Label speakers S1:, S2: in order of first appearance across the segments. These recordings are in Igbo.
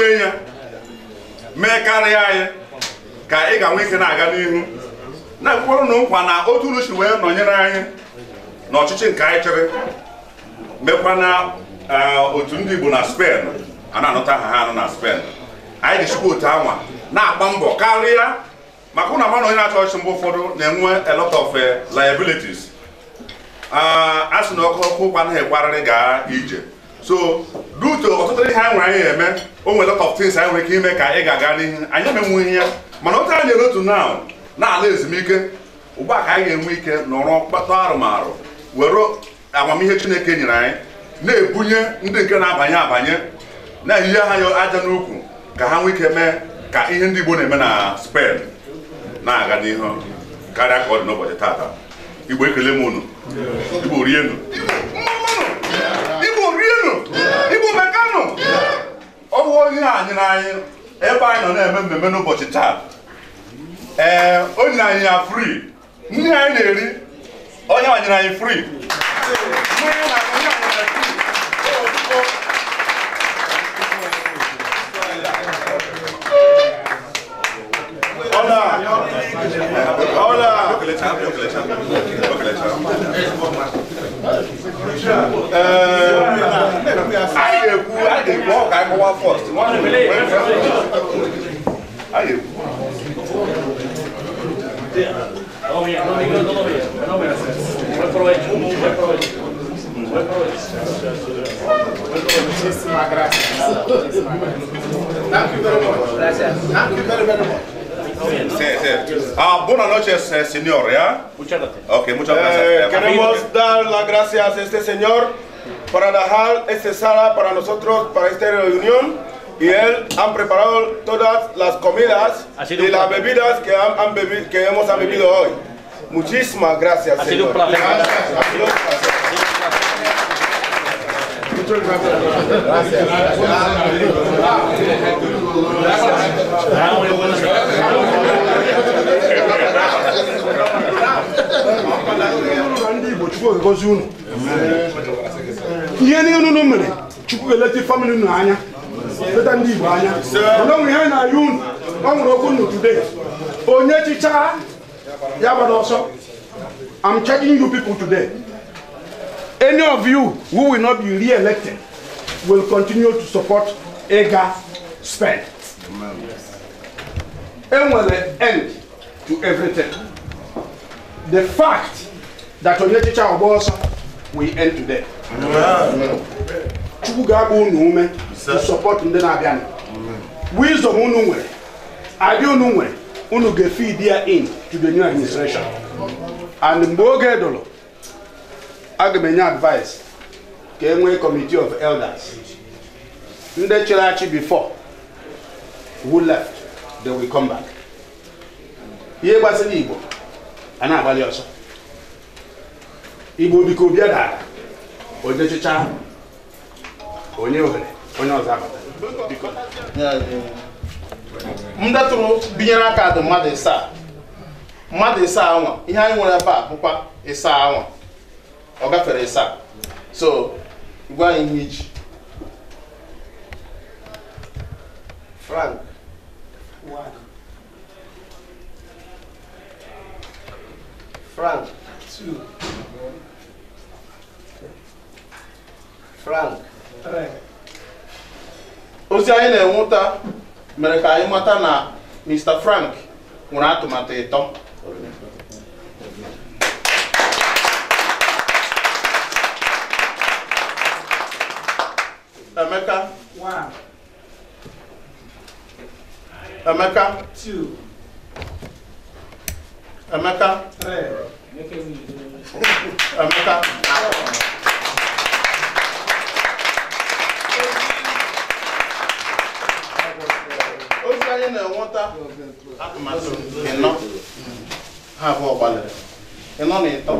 S1: gọzie ya mee karịa anyị ka ị ga-enwe ike na-aga n'ihu na-ekwukwarụ na nkwa na otu uruchi wee nọnyere anyị na ọchịchị nke anyị chịrị mekwa na e, otu ndị Igbo na Spen a na-anụta ha ha anụ na Spen anyị jichikwa otu anwa na-agba mbọ karịa maka ụna mmanụ onye na-achọ ọchịchị mgbe ụfọdụ na-enwe a lot of e, liabilities a sị na ọkụ ọkụ ụkwa anaghị ekwarịrị gaa ije so duto ọtụtụ ihe anyị nwere anyị eme o nwere lot of things anyị nwere ike ime ka ị ga-aga n'ihu anyị emenwu ihe ya mana otu anyị nyere otu na na-ala ezumike ugbu a ka anyị ga-enwe ike nọrọ kpata arụmarụ were amamihe chineke nyere anyị na-ebunye ndị nke na-abanye abanye na aha ha aja n'ukwu ka ha nwee ike mee ka ihe ndị Igbo na-eme na spen na-aga n'ihu karịa ka ọ dị n'ụbọchị tata Igbo ekele m unu Igbo rienu igbo mekanụ ọ bụ onye a nyere anyị ebe anyị nọ na-eme mmemme n'ụbọchị taa ee o anyị ya fri nri anyị na-eri onye a anyị fri Hola. Hola. Hola. a ga-ekwu a ga-ekwu ọ ga-akọwa fọst a ga-ekwu Muchísimas gracias. Muchísimas gracias. Thank you very much. Gracias. Thank you very, very much. Ah, buenas noches, eh, señor. ¿ya? Muchas
S2: gracias. Eh, queremos
S1: dar las gracias a este señor para dejar esta sala para nosotros, para esta reunión. Y él ha preparado todas las comidas y las bebidas que, hemos han bebido hoy. Muchísimas gracias,
S3: ha Sido un placer. Muchas gracias.
S1: gracias. ndị Igbo Chukwu gozi unu ihe niile unu mere Chukwu eleta famili unu anya leta ndị Igbo anya mana onwere ihe na-ayụ unu ọ nwere okwu unu today onye chicha ya gbara ọsọ am charging you people today any of you who will not be re-elected will continue to support Ega spend. Enwere end to everything. the fact that onye echiche of ọsọ we end today chukwu ga-agba unu ume to support ndị na-abịa wisdom unu nwere adị unu nwere unu ga-feed ya in to the new administration and mgbe oge dụrụ aga m enye advice ka e nwee committee of elders ndị chịrị achị before who left they will come back ihe gbasara igbo a na-agbalị ọsọ igbo biko obi dara onye chịcha onye ohere onye ọzọ abata m detụrụ binyere aka dị mmadụ ịsaa mmadụ ịsa anwa ihe anyị nwere ebe a bụkwa ịsa anwa ọ gafere so gwa anyị ihe iji frank Frank. Two. Frank. ozi anyị na-enweta mere ka anyị mata na Mr. Frank nwere atụmatụ ịtọ Emeka Emeka Emeka Emeka ozi anyị na-enweta atụmatụ ịnọ ha abụọ ịnọ na ịtọ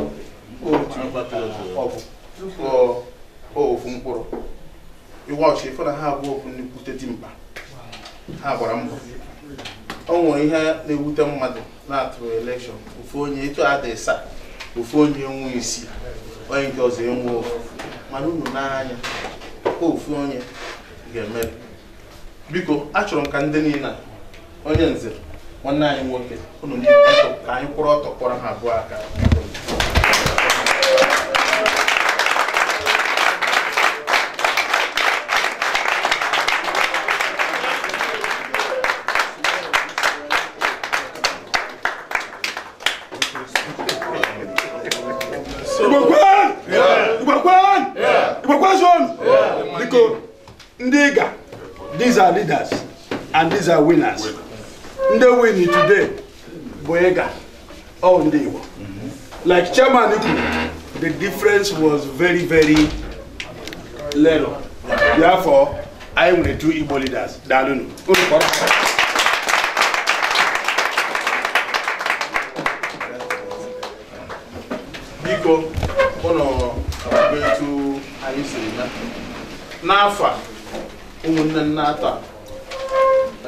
S1: mkpụrụ iwe ọchị ha abụọ ha gbara mbọ nwere ihe na-ewute mmadụ na atụrụ elekshọn ofu onye etu adịghị saa ofu onye nwe isi onye nke ọzọ enwe ofu mana unu n'anya ofu onye ga-emeri biko achọrọ m ka ndị niile onye nze nwanne anyị nwoke unu ka anyị kwụrụ ọtọ kpọrọ ha abụọ aka these are winners They win today Boyega, ịga oh, ọ like chairman the difference was very very little therefore I am the two Igbo leaders daalụnụ biko ụlọ etu anyị siri na n'afọ a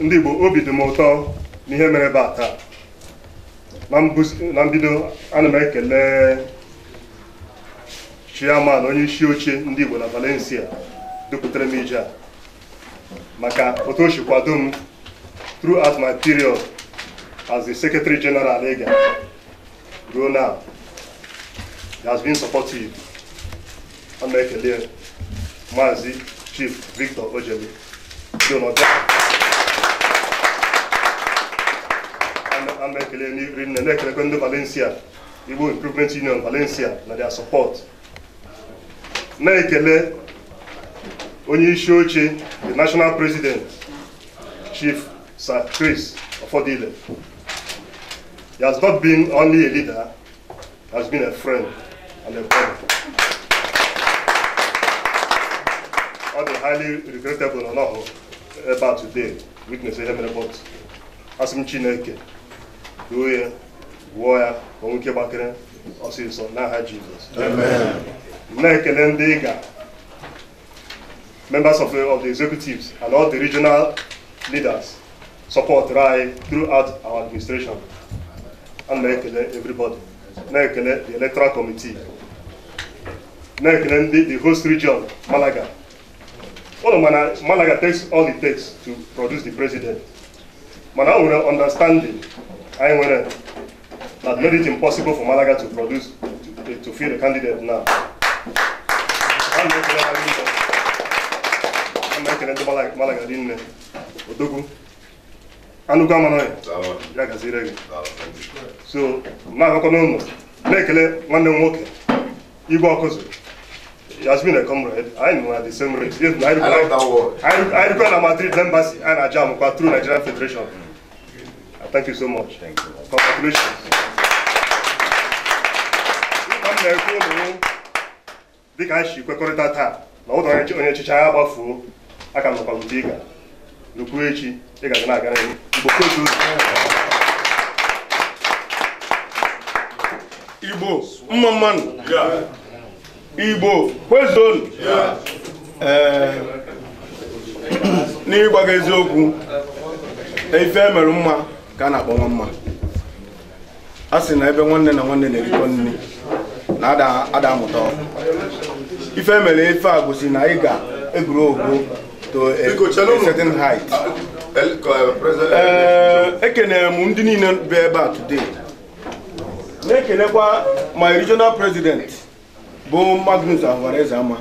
S2: ndị Igbo obi dị m ụtọ n'ihe mere ebe a taa na mbido ana m ekele chairman onye isi oche ndị Igbo na Valencia dupụtara m ije maka otu o si kwado m throughout my period as the secretary general ega ruo has been supportive ana ekele maazị chief victor ojeli dị a na-ekele nri nne na-ekelekwe ndị Valencia Igbo Improvement Union Valencia na their support na-ekele onye isi oche the national president chief sir Chris Ofodile he has not been only a leader he has been a friend and a brother ọ the highly regrettable na ọ nọghị ebe a today witness a mere but asị Chineke Go ya, gwọọ ya ka nwoke gbakere ọsịsọ Jesus. Jizọs na-ekele ndị ga members of of the executives and all the regional leaders support anyị throughout our administration and na-ekele everybody na-ekele the electoral committee na-ekele the host region Malaga All of Malaga takes all it takes to produce the president mana o nwere understanding Ainwere that uh, made it impossible for Malaga to produce, to, to field a candidate now. An ekele ndị Malaga dị nne, Odogwu, Anụkwa Manoy, ya gaziri gị. So, na-agakwa n'ụlọ, na-ekele nwanne m nwoke, Igwe Ọkụzụ, He has been a comrade. I know at the same rate. If I, I like that Madrid embassy and a jam through Nigerian Federation. Thank you so much. Thank you. Congratulations. Ịka m na-ekwu dịka anyị si kwekọrịta taa na ụlọ onye ọchịchị agha gbafuo aka m nọkwa mte ịga nukwu echi ịgaga na-aga n'ihu
S1: Igbo mma mmanụ Igbo kwezonu ee n'ịgwa gị eziokwu ife mere mma ka a na-akpọ nwa mma a sị na ebe nwanne na nwanne na-erikọ nri na ada amụta ife e mere ife a gosi na ị ga-egwuru ogo to a certain height eh, eh, ekenere m ndị niile bụ ebe a today na-ekelekwa my regional president bụ Magnus Alvarez ama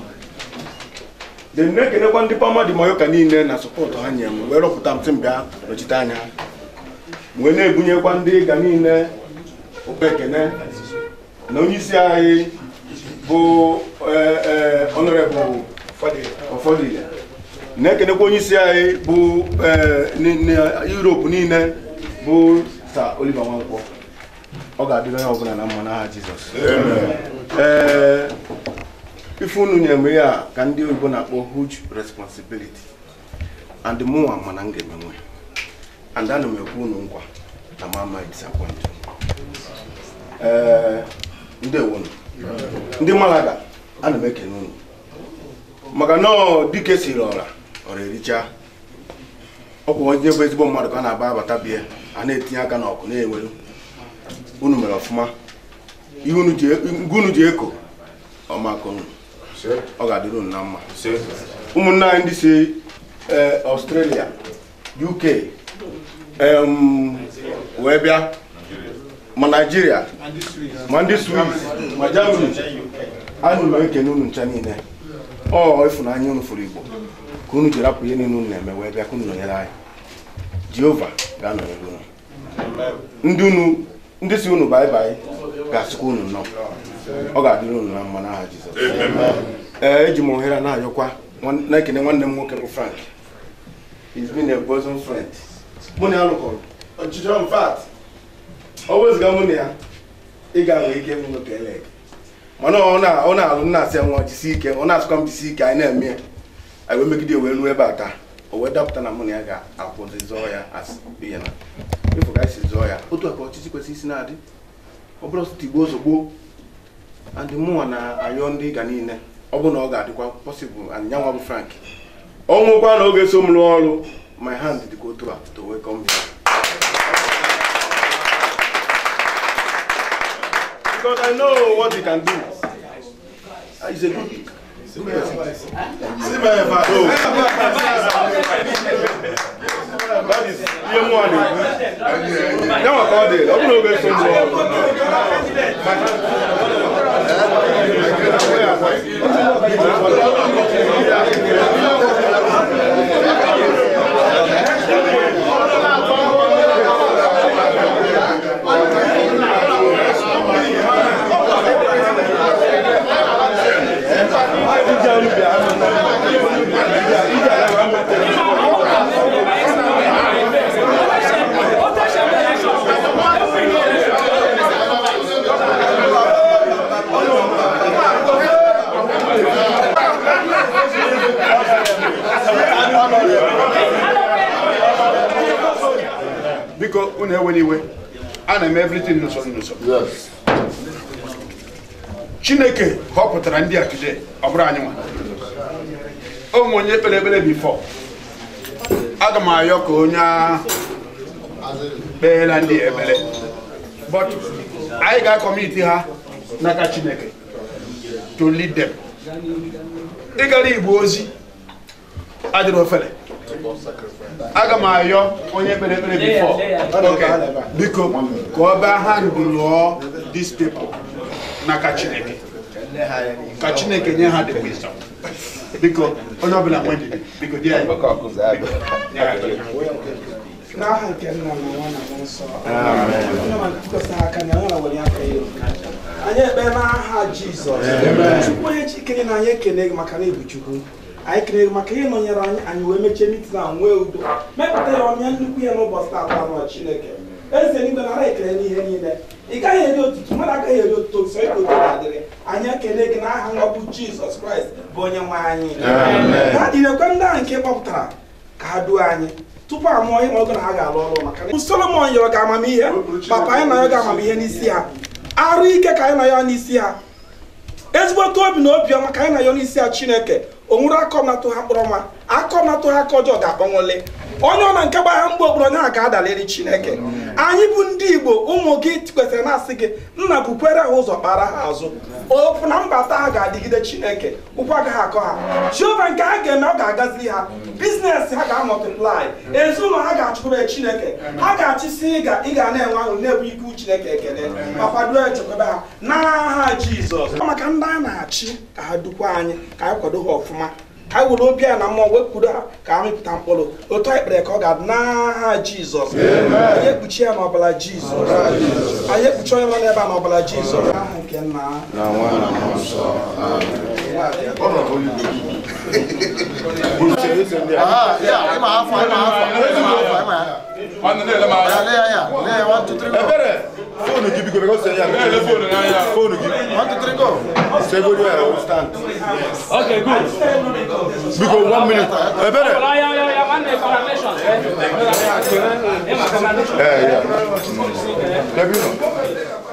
S1: de na-ekelekwa ndị pamadi mayoka niile na sọpọtụ ha nye m wee rọpụta m sị m nọchite anya wee na-ebunyekwa ndị ịga niile ofe na onyeisi anyị bụ ọnọrebụl e, e, ọfọdụ na-ekenekwa onyeisi anyị bụ e, Europe niile bụ Sir Oliver Nwankwo ọ ga-adịrị onye ọbụla na mma n'aha Jizọs ee ife unu nyere ya ka ndị oyibo na-akpọ huge responsibility and mụnwa mana m ga-emenwe and ana m ekwu unu nkwa na m amaghị disappoint ee eh, ndewo ndị Malaga ana m ekene unu maka na dike siri ọra ọra ericha ọkwa onye bụ ezigbo mmadụ ka na-aba abata bie a na-etinye aka n'ọkụ na-enwelu unu mere ọfụma ihe unu ji e, eko ọmaka unu ọ ga-adịrị unu na mma ụmụnne anyị ndị si eh, Australia UK wee bịa ma naijiria ma ndị swiss ma jamani anyị ụlọ ekene unu ncha niile ọ ịfụnanya unu fụrụ igbo ka unu ji rapụ ihe niile unu na-eme wee bịa ka unu nọnyere anyị jehova ga-anọnyere unu ndị unu ndị si unu baị baị ga-asịkwa unu nọ ọ ga-adịrị unu na mma n'aha jizọs ee eji m ohere na-ayọkwa na-ekene nwanne m nwoke bụ frank he's been a bosom friend mụ na ya lụkọrọ ọchịchọ m fat ọ wezụga mụ na ya ị ga-enwe ike m nwoke ele mana ọ na-alụ nna asị nwa jisi ike ọ na-asụkwa m jisi ike anyị na-eme ya anyị megide wee nuo ebe a taa o wee dapụta na mụ na ya ga-akwụzi zọọ ya ihe na ịfụ ka anyị zọọ ya otu aka ọchịchị kwesịrị isi na-adị ọ bụrụ tigbo ozugbo andị mụnwa na-ayọ ndị ịga niile ọ bụ na ọ ga-adịkwa pọsịbụl anyị nyanwa bụ frank ọ nwekwa na oge so m rụọ ọrụ my hand did go through to welcome him. because I know what he can do. He's ah, a good See my advice. Oh. That is year one. Now I called it. I'm not going to My hand. onwe n'iwe eme everything n'usoro n'usoro chineke họpụtara ndị a today ọ bụrụ anyị nwa o onye kpere ekpere bifọ aga m ayọ ka onye kpeela ndị ekpere but anyị ga-akọmiti ha n'aka chineke to lead them ịgara igbo ozi adịrị ofele aga m ayọ onye kpere ekpere bifọ biko ka ọ bịa ha ndụlụọ dis people n'aka Chineke ka Chineke nye ha dị wisdom biko onye ọbụla nwe ndidi biko di anyị
S3: n'aha nke na na na anyị ekpe n'aha Jizọs chukwu onye na anyị ekele gị maka na ị chukwu anyị kere maka ihe nọnyere anyị anyị wee mechie mitin na nwee udo mepụta ya ọmịa nnukwu ya n'ụbọchị tata anụ chineke eze n'igwe na ekele n'ihe niile ị gaghị eri otutu mmadụ agaghị eri otuto so ịka otu na-adịrị anyị ekele gị n'aha nwa bụ jizọs kraịst bụ onye nwe anyị ha jirekwe ndị ahụ nke kpọpụtara ka ha duo anyị tupu a mụọ ihe ọgụ na ha ga-alụ ọrụ maka solomon yọrọ ga amamihe papa anyị na ya ga amamihe n'isi ha arụ ike ka anyị na ya n'isi ha ezigbote obi na obiọma ka anyị na ya n'isi ha chineke o nwere akọ natụ ha kpọrọ nwa akọ natụ ha ka ọjọọ ga-akpọnwụle onye ọ na nke gbagha mgbe obodo onye a ga-adaliri chineke anyị bụ ndị igbo ụmụ gị kwesịrị na-asị gị nna bukwere ha ụzọ kpara ha azụ ofu na mbata ha ga-adịgide chineke ụkwụ agaghị akọ ha jehova nke ha ga-eme ọ ga agazi ha biznes ha ga-amọtiplai ezinụlọ ha ga-achụpụrụ chineke ha ga-achịsi ị ga na-enwe ahụ na-ebu ike chineke ekele ma kwado echekwebe ha n'aha jizọs maka ndị a na-achị ka ha dukwa anyị ka anyị kwado ha ọfụ ọfụma anyị were obi a na mmụọ wepụrụ ha ka ha mịpụta mkpụrụ otu anyị kpere ka ọ ga-adị n'aha jizọs anyị ekpuchi ya n'ọbara jizọs anyị ekpuchi onye nọ n'ebe a n'ọbara jizọs aha nke nna
S1: ha ah, ebere phone qui pique parce que yeah le phone là yeah phone qui want to drink off c'est good yeah we stand okay good
S3: because one minute eh bere yeah yeah yeah yeah man information
S1: eh yeah yeah yeah